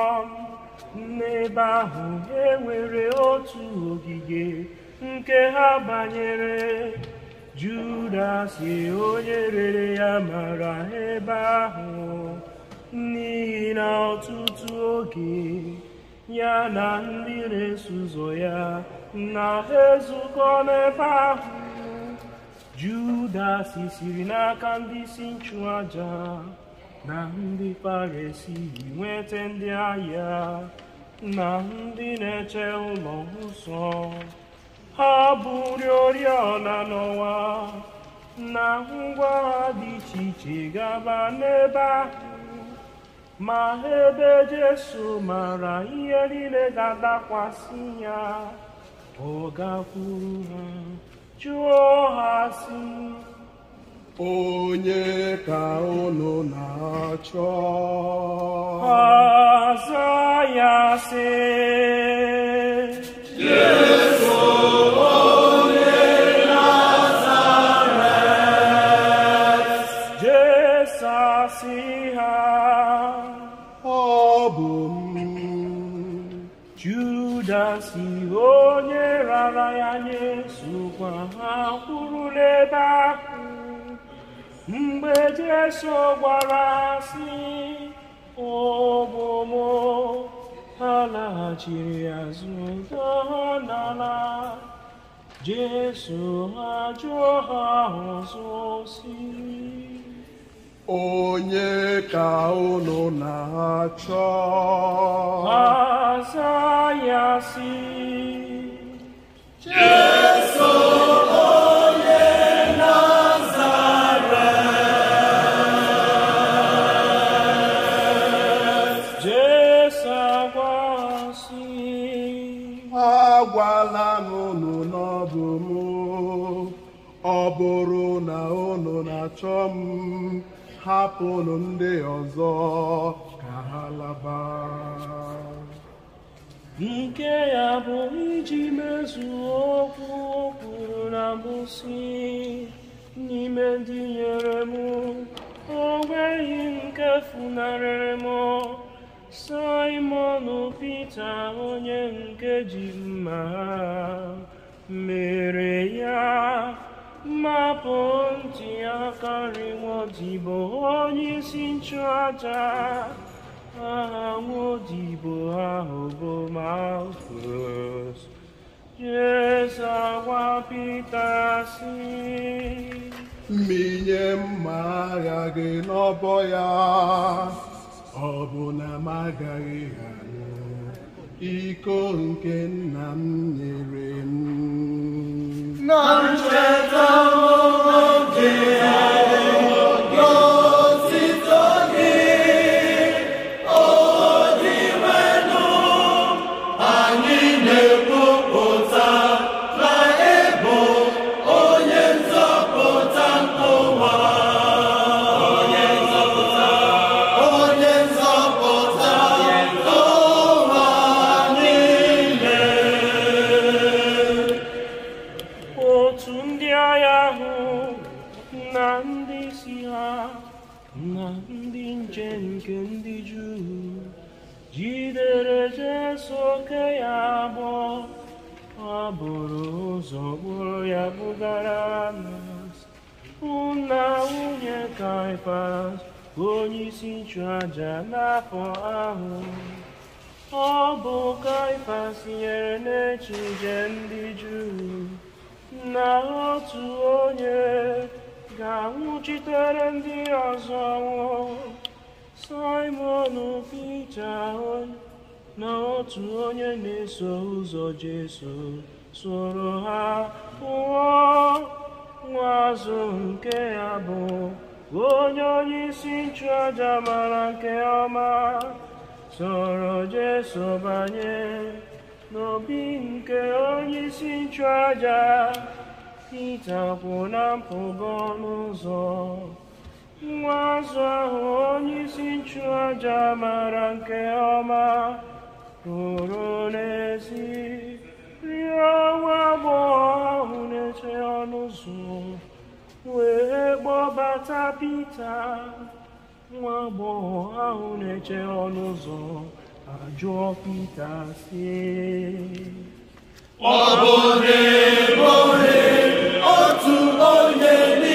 ọhụrụ n'ebe ahụ e nwere otu ogige nke ha banyere Judas onye rere ya mara ebe ahụ n'ihi na ọtụtụ oge ya na ndị na-eso ụzọ ya na ezukọ n'ebe ahụ Judas siri n'aka ndị isi nchụaja na ndị paresi nweta ndị agha na ndị na-eche ụlọ nsọ ha bụrụ oriọna n'ọnwa na ngwa ha dị iche iche gaba n'ebe ahụ ma ebe Jesu mara ihe niile ga-adakwasị ya ọ gakwuru ha chụọ ha si onye ka unu na-achọ ọzọ ya sị eso gbara asị ụmụmụ azụ gaa n'ala Jesu ha jụọ ha ọzọ si onye ka unu na-achọ ha zaa ya si Jesu ọ bụrụ na unu na-achọ m hapụnụ ndị ọzọ ka ha laba nke ya bụ iji mezuo okwu o na mbụ n'ime ndị nyere m onweghị nweghị nke funarịrị m Simon Pita onye nke ji mma ha 메레야 마본지야 가리워지 보니 신차자 아무지 보아오보 마우스 예사와 피타시 minha mara que não boia, obuna magariga. iko nke nna m nyere m na ncheta oge ya ịchụàjà n'afọ ahụ ọ bụ Kaịfas nyere n'echije ndị Juu na otu onye ga-anwụchitere ndị ọzọ Simon Pita na otu onye na-eso ụzọ Jesu soro ha pụọ nwa azụ nke ya bụ onye onye isi nchụaja mara nke ọma soro Jesu banye n'obi nke onye isi nchụaja Pita kwụ na mpụga ọnụ ụzọ nwa azụ ahụ onye isi nchụaja mara nke ọma ruru n'ezi rịọ onwe agbọghọ ahụ na-eche ọnụ ụzọ wee kpọbata Pita nwa agbọghọ ahụ na-eche ọnụ ụzọ ajụọ Pita sie. ọ bụ ohere otu onye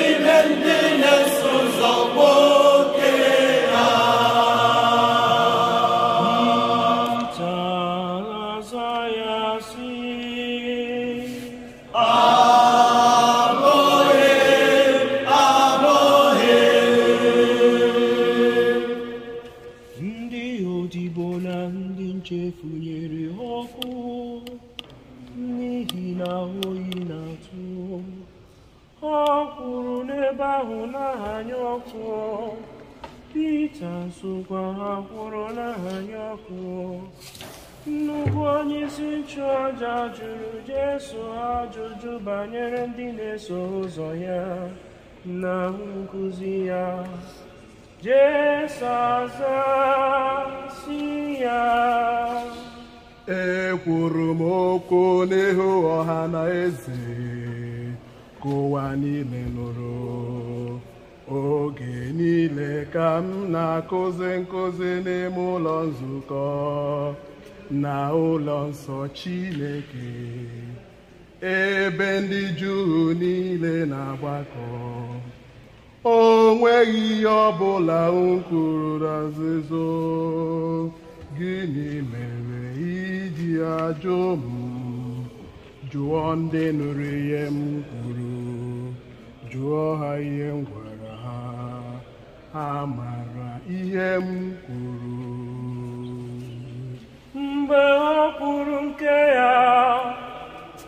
na-eso ya na nkuzi ya jezazasi ya ekwuru m okwu n'ihu ọha na eze ka ụwa niile nụrụ oge niile ka m na-akụzi nkụzi n'ime ụlọ nzukọ na ụlọ nsọ chineke ebe ndị Juu niile na-agbakọ o nweghị ihe ọbụla m kwuru nzuzo gịnị mere iji ajụ m jụọ ndị nụrụ ihe m kwuru jụọ ha ihe m gwara ha ha mara ihe m kwuru mgbe ọ kwuru nke ya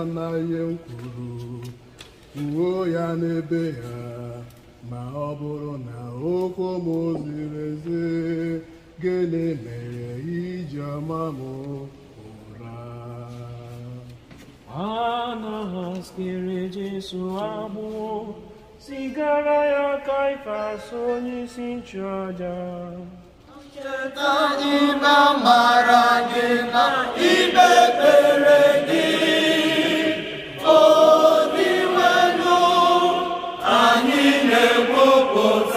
anaghị ekwuru uwe ya n'ebe ha ma ọ na okwu m ziri ezi gịnị mere iji ọma m ụra anaghaziri Jesu ya Kaifas onyeisi nchụaja cheta na mara gị na ikpe gị Lord,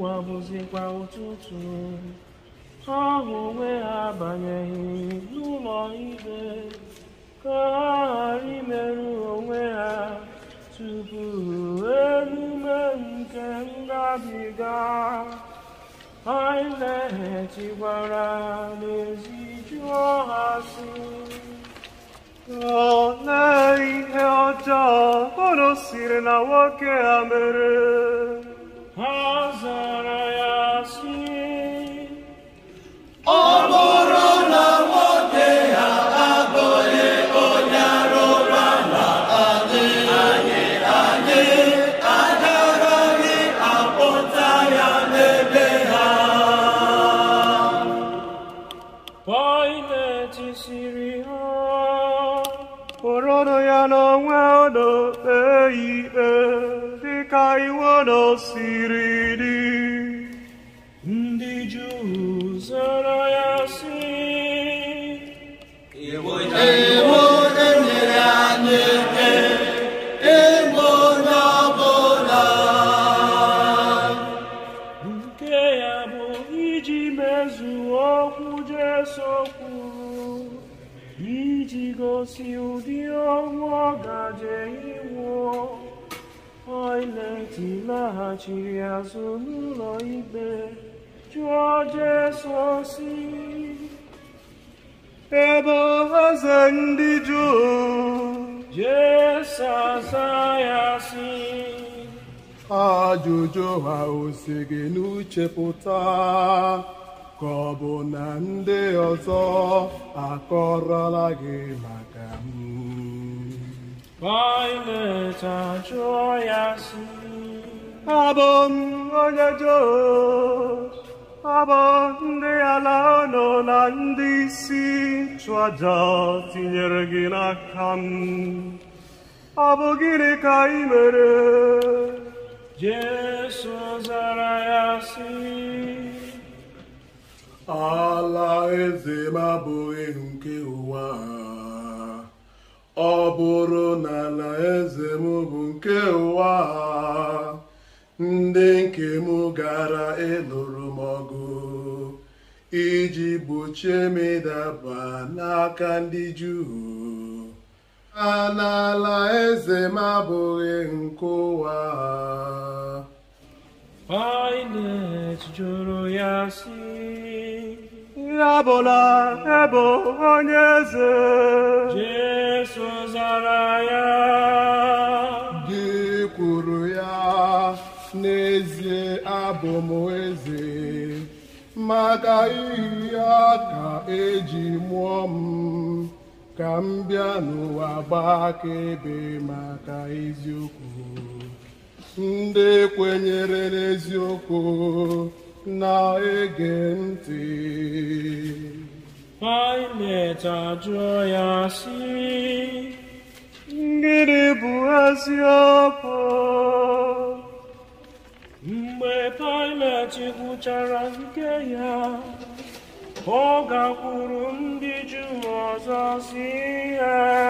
ụwa bụzikwa ụtụtụ ahụ onwe ha n'ụlọ ka ha ghara imerụ onwe ha tupu nke ngabiga n'ezi jụọ ha si ihe ọjọọ siri na nwoke ha mere ha zara laghachiri azụ n'ụlọ ikpe jụọ Jesọs ebe eze ndị Juu Jesa zaa ya sị ajụjụ ha osi gị n'uche pụta ka ọ bụ na ndị ọzọ akọrọla gị maka m Pilate ya ya abụm onye joe abụọ ndị ala ụlọ na ndị isi chụọja ọtụnyere gị na kamun ọ bụ gịrị ka ị mere jesụ zara ya sị ala ezemabu ihu nke ụwa ọ bụrụ na na bụ nke ụwa ndị nke m gara ịlụrụ m ọgụ iji gbochie m ịdaba n'aka ndị Juu n'ala eze m abụghị nke ụwa Pilet jụrụ ya sị ebe onye eze Jesu zara ya gị kwuru ya n'ezie abụ m eze maka iyi ya ka eji mụọ m ka m bịa n'ụwa akaebe maka eziokwu ndị kwenyere n'eziokwu na-ege ntị Pilet ajụọ ya si gịnị bụ eziokwu mgbe Pilet gwụchara nke ya ọ gakwuru ndị Juu ọzọ si ya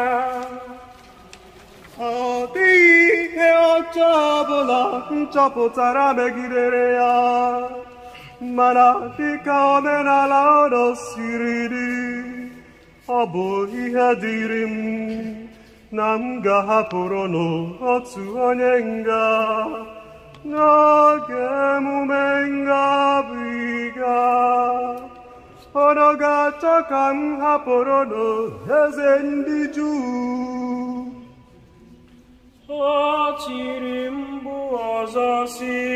ọ dịghị ihe ọcha ọbụla m chọpụtara megidere ya mana dịka omenala ụlọ siri dị ọ bụ ihe dịrị m na m ga-ahapụrụ n'otu onye nga Noche mumenga viga Ono gacha kam haporo no hezendi ju Achirimbu azasi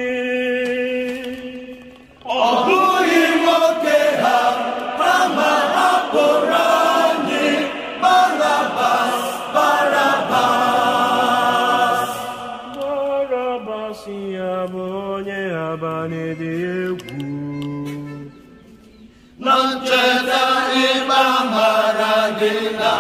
Ogu imoke ha Prama haporo na-adị egwu na ncheta ịgba mara gị na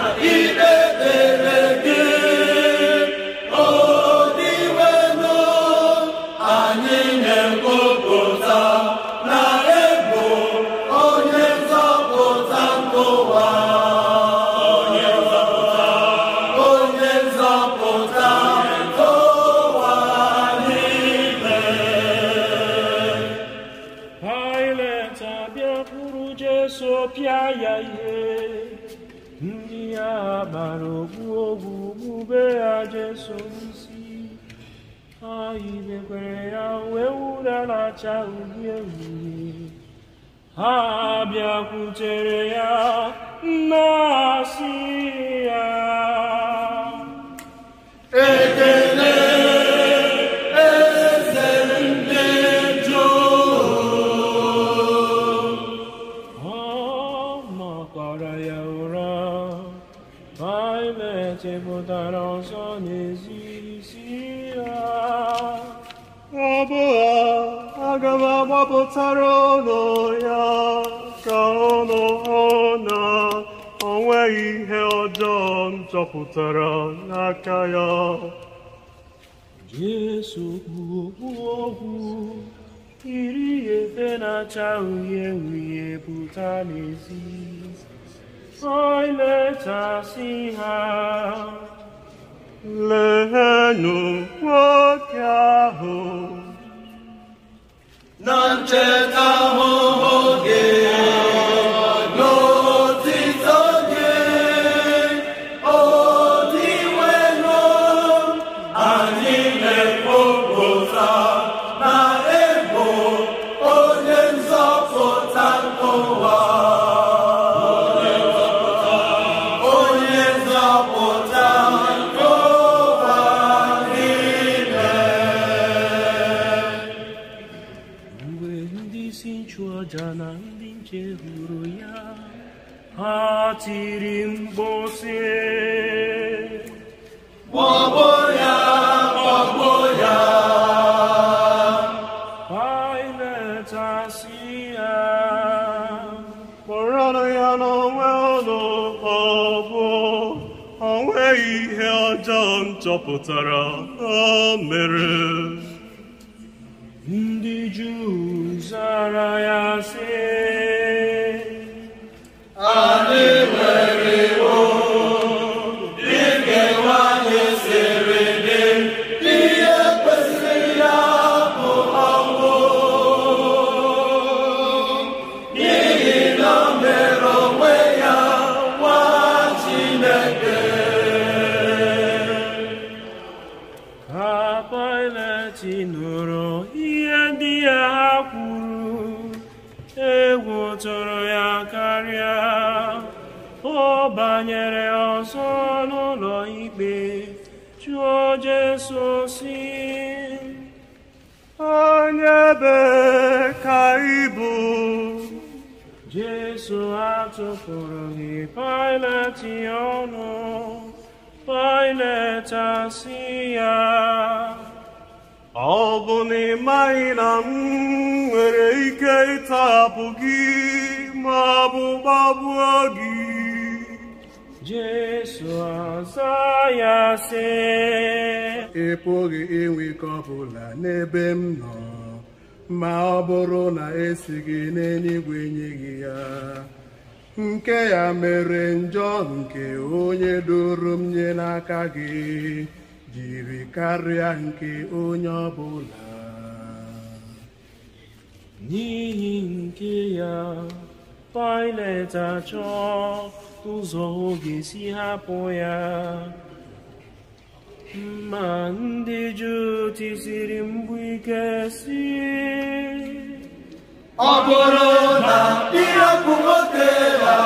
kacha uhie uhie ha bịakwutere ya nna no no ona の太郎のや顔の花 onwe ihe ọjọọ m chọpụtara n'aka ya Jesu bụ okpu ogwu yiri efe na-acha uhie uhie pụta n'ezi oilechasị ha lehenụ nwoke ahụ nan czeka ogień. 하지린 곳에 뭐보야 뭐보야 바이네 자시야 뭐라노야 너왜너 바보 아웨이 헤어져 접붙어라 아메르 sono loibe, cio Gesù sin. anebe nebe caibu, Gesù atto forohi bụ Jesus ị maghị na m nwere ike ịtapụ gị ma ọ bụ gbagbuo gị Jesu ọzọ ya sị ị pụghị inwe ike ọbụla n'ebe m nọ ma ọ bụrụ na esi gị n'eluigwe nye gị ya nke ya mere njọ nke onye doro m nye n'aka gị jiri karịa nke onye ọbụla n'ihi nke ya Pilet achọ ụzọ ọ ga-esi hapụ ya ma ndị juu tisiri mbụ ike si ọ bụrụ na ịrapụ nwoke ya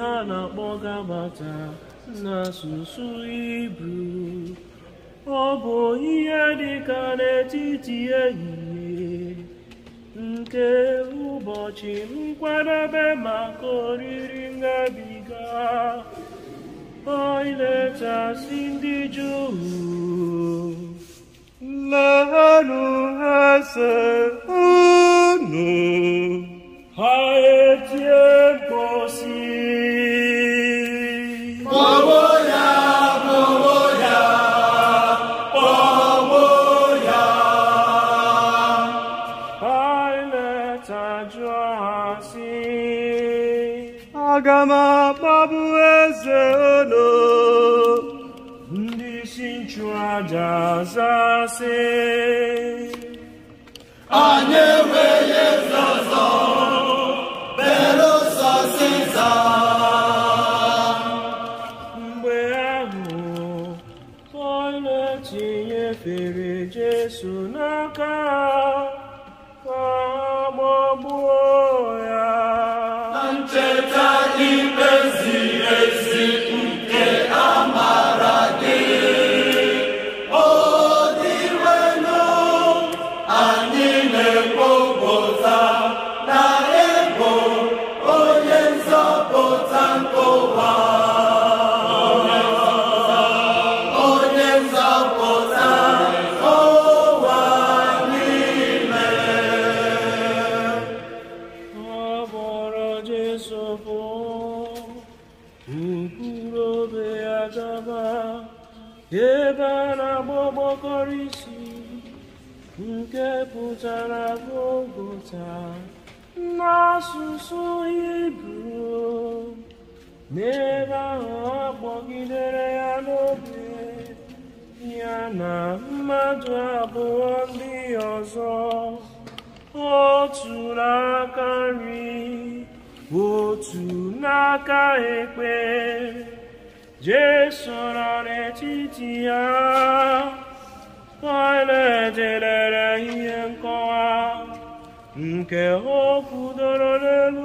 ha na-akpọ gabata n'asụsụ Hibru ọ bụ ihe dị ka n'etiti ehihie nke ụbọchị nkwadebe maka oriri ngabiga ilechasị ndị Juu lehanụ ha unu ha etie Jazase Anyewe Yezazo Bero Sasiza Mgbe ahụ Onye tinyefere Jesu n'aka n'ebe ahụ ọ ya n'obi ya na mmadụ abụọ ndị ọzọ otu n'aka nri otu n'aka ekpe Jesu nọ n'etiti ya Pilate ihe nkọwa nke okwu kwudoro n'elu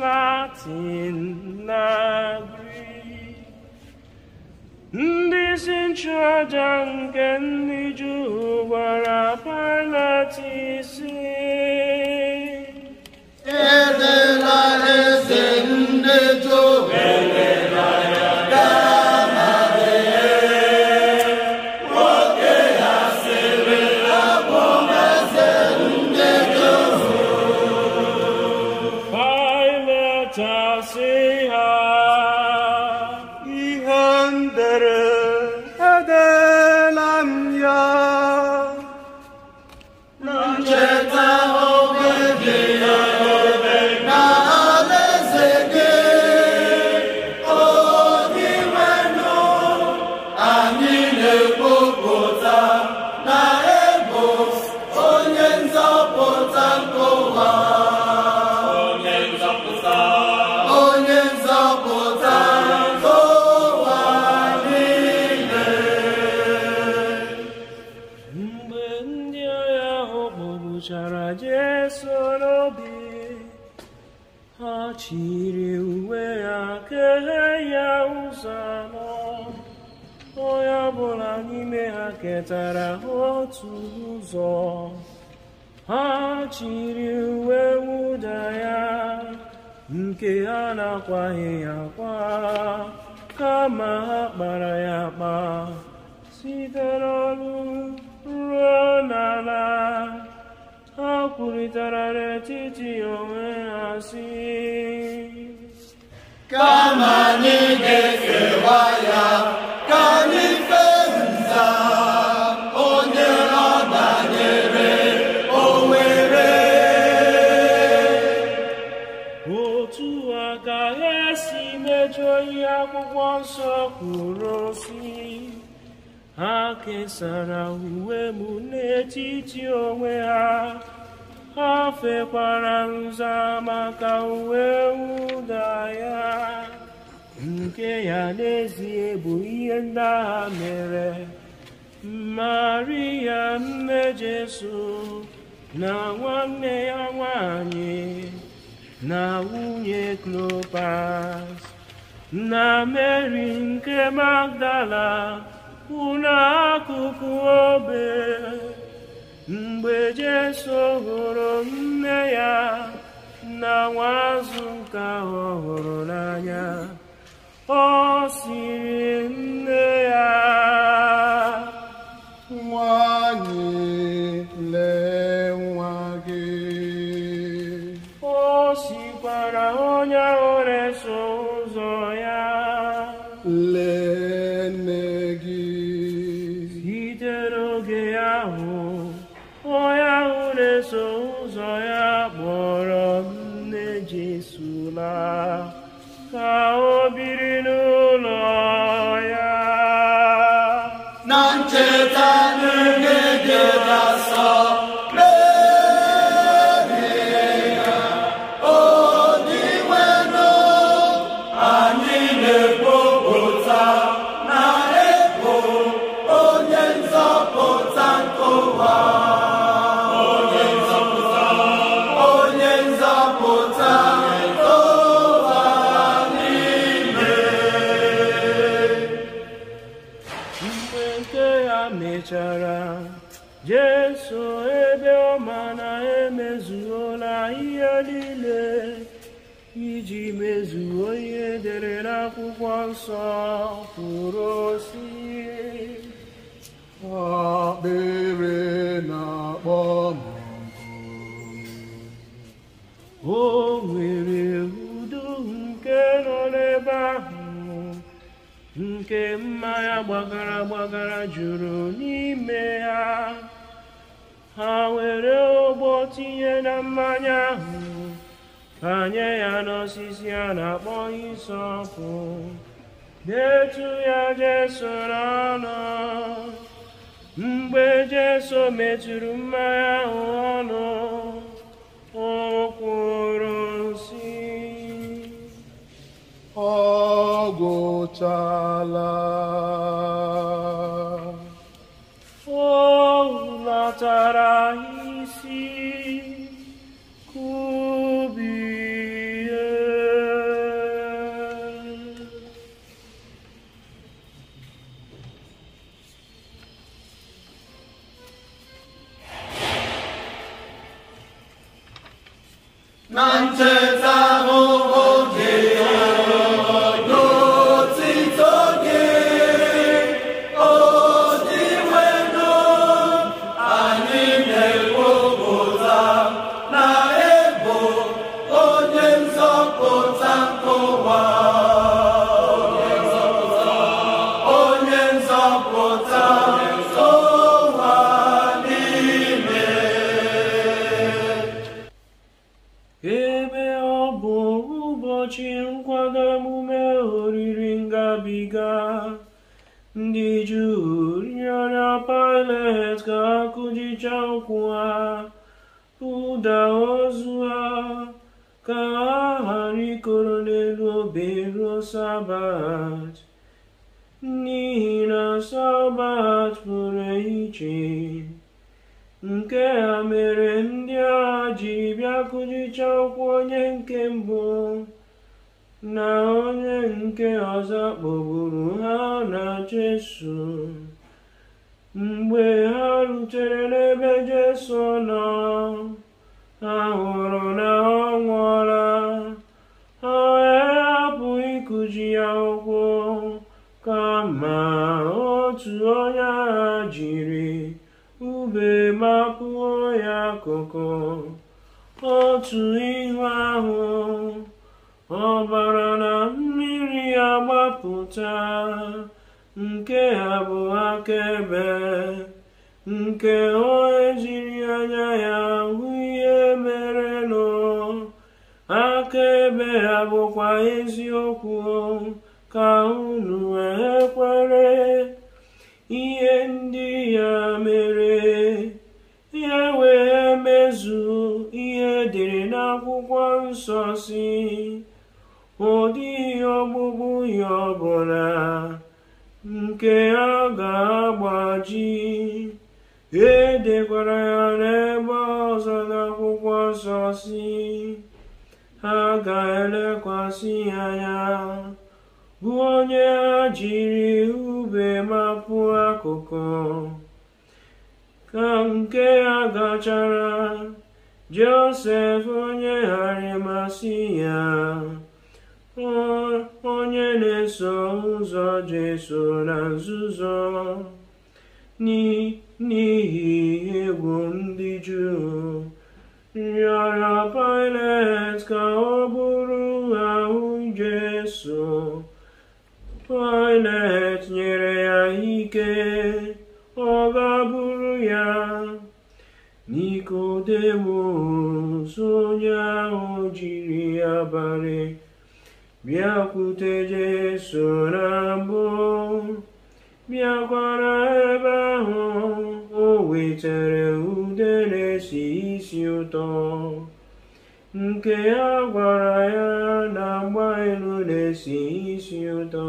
Latin in Ndị sinchaja nke ndị Juu gwara Pilat isi Ede nwetara otu ụzọ ha chiri uwe wụda ya nke ha na-akwaghị ya akwa kama ha kpara ya akpa site n'ọnụ ruo n'ala ha kwurịtara n'etiti onwe ha si kama anyị ga-efewa ya ka anyị akwụkwọ nsọ kwuru si ha kesara uwe m n'etiti onwe ha ha fekwara nza maka uwe ụda ya nke ya n'ezie bụ ihe ndị agha mere maria nne jesu na nwanne ya nwanyị na nwunye klopas na mary nke Magdala ụlọ akụkụ obe mgbe Jesu hụrụ nne ya na nwazụ nke ahụ hụrụ n'anya ọ siri Amen. mechara Jesu ebe ọma na emezuola ihe niile iji mezuo ihe dere n'akwụkwọ nsọ kwuru si akpịrị na-akpọ o nwere udo nke nọ n'ebe ahụ nke mmanya gbagara gbagara juru n'ime ha ha were ụgbọ tinye na mmanya ahụ banye ya n'osisi a na-akpọ isọpụ detu ya jeso n'ọnụ mgbe jeso metụrụ mmanya ahụ ọnụ o kwuru ogochala jichakwa ụda ozu a ka ha ghara ikoro n'elu obere sabat n'ihi na sabat pụrụ iche nke ha mere ndị agha jiri bịa ụkwụ onye nke mbụ na onye nke ọzọ kpọgburu ha na Jesu mgbe ha rutere n'ebe jesu nọ ha hụrụ na ọ nwụọla ha hapụ ịkụji ya ụkwụ kama otu onye ha jiri ube mapụọ ya akụkụ otu ihu ahụ ọbara na mmiri agbapụta nke ha bụ akaebe nke o ejiri anya ya hụ ihe mere nọ akaebe ha bụkwa eziokwu ka unu wee kwere ihe ndị ya mere ya wee mezu ihe dịrị n'akwụkwọ nsọ si ọ dịghị ọgbụgbụ ya ọbụla nke a ga-agbaji edekwara ya n'ebe ọzọ n'akwụkwọ nsọ si ha ga-elekwasị anya bụ onye ha jiri ube mapụ akụkụ ka nke ya gachara josef onye harimasi ya onye na-eso ụzọ Jesu na nzuzo n'ihi egwu ndị Juu rịọrọ Pilet ka ọ bụrụ ahụ Jesu Pilet nyere ya ike ọ ga-abụrụ ya Nikodemus onye ahụ jiri abalị Bien protéger son amour, bien connaître, oh éternel, ou de l'essentiel, nke a gwara ya na agba elu na-esi isi ụtọ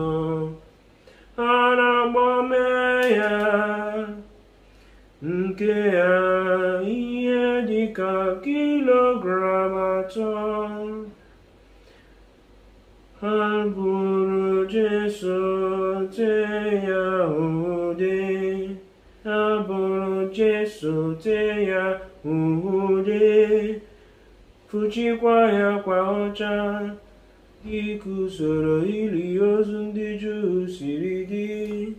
a na ya nke ya ihe dịka kilogram atọ 할부르 제수 제야우디 아부르 제수 제야우디 부지과야 과오자 이구서로 일이어준 디주 시리디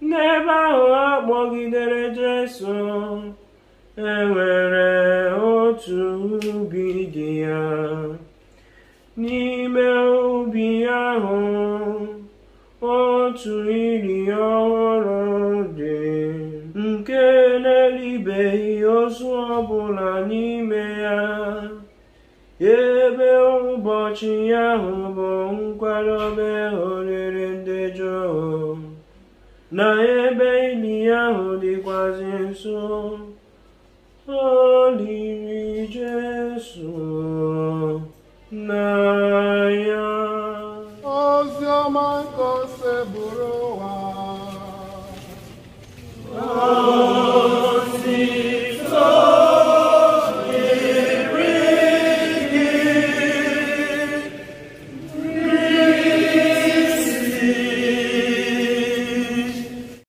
내 마음 먹이들의 제수 enwere otu ubi dị otu iri ọhụrụ dị nke na-eribeghị ozu ọbụla n'ime ya ebe ụbọchị ahụ bụ nkwadobe oriri ndị jụụ na ebe ili ahụ dịkwazi nso o liri Jesu